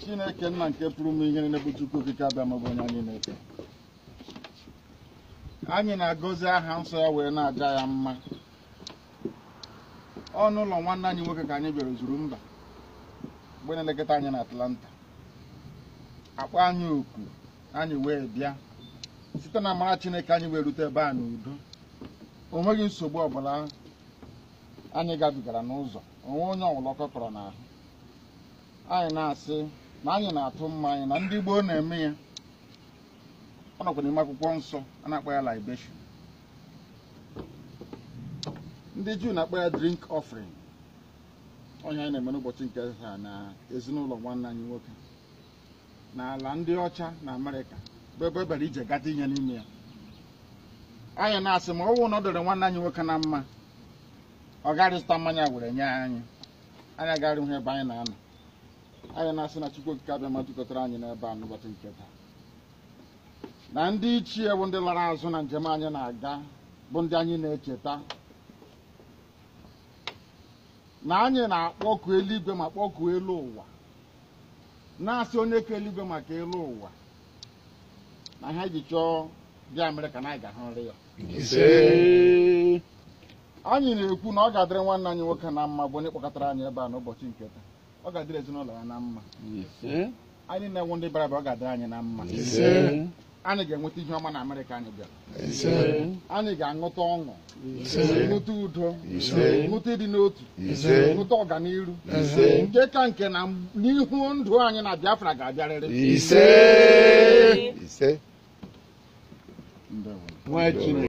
chineke nna nke pụrụ m ihe na bụ chukwu okike abịa onye anyị na-efe anyị na-agọzi aha nsọ ya wee na-aja ya mma ọnụ ụlọ nwanne anyị nwoke ka anyị bịara zuru mba mgbe na-elekọta anyị na Atlanta akpa anyị oku anyị wee bịa site na amara chineke anyị wee rute ebe a n'udo o nweghị nsogbu ọbụla anyị gabigara n'ụzọ onwe onye ọwụlọkọ kọrọ n'ahụ anyị na-asị na anyị na-atụ mma anyị na ndị gboo na-eme ya ọ nọkwa n'ime akwụkwọ nsọ a na-akpọ ya libation ndị juu na-akpọ ya drink offering onye anyị na-eme n'ụbọchị nke ha na ezinụlọ nwanne anyị nwoke na ala ndị ọcha na amerịka bụ ebe ebere ije gata ihe n'ime ya anyị na-asị ma ọ wụ na ọ dịrị nwanne anyị nwoke na mma ọ gara mmanya were nye anyị anyị agaghị hụ ebe anyị na-anọ anyị na-asị na Chukwu okike abịa ma anyị n'ebe a n'ụbọchị nke taa na ndị ichie bụ ndị lara azụ na njem anyị na-aga bụ ndị anyị na-echeta na anyị na-akpọku eluigwe ma kpọkuo elu ụwa na-asị onye ka eluigwe maka elu ụwa na ha ji chọọ bịa mere ka na anyị ga nri ya anyị na-ekwu na ọ ga-adịrị nwanne anyị nwoke na mma bụ onye kpọkọtara anyị ebe a n'ụbọchị nke taa ọ ga-adịrị ezinụlọ ya na mma anyị na-enwe ndị bara ọ ga-adịrị anyị na mma anyị ga-enweta ihe ọma na amerịka anyị bịara anyị ga-aṅụta ọṅụ ṅụta udo ṅụta ịdị n'otu ṅụta ọganihu nke ka nke na n'ihu ndụ anyị na biafra ga-abịarịrị ise nwa chineke